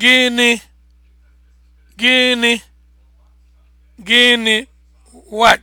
Gịnị, gịnị, gịnị, what?